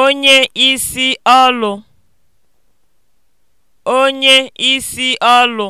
onye isi ọlụ onye isi ọlụ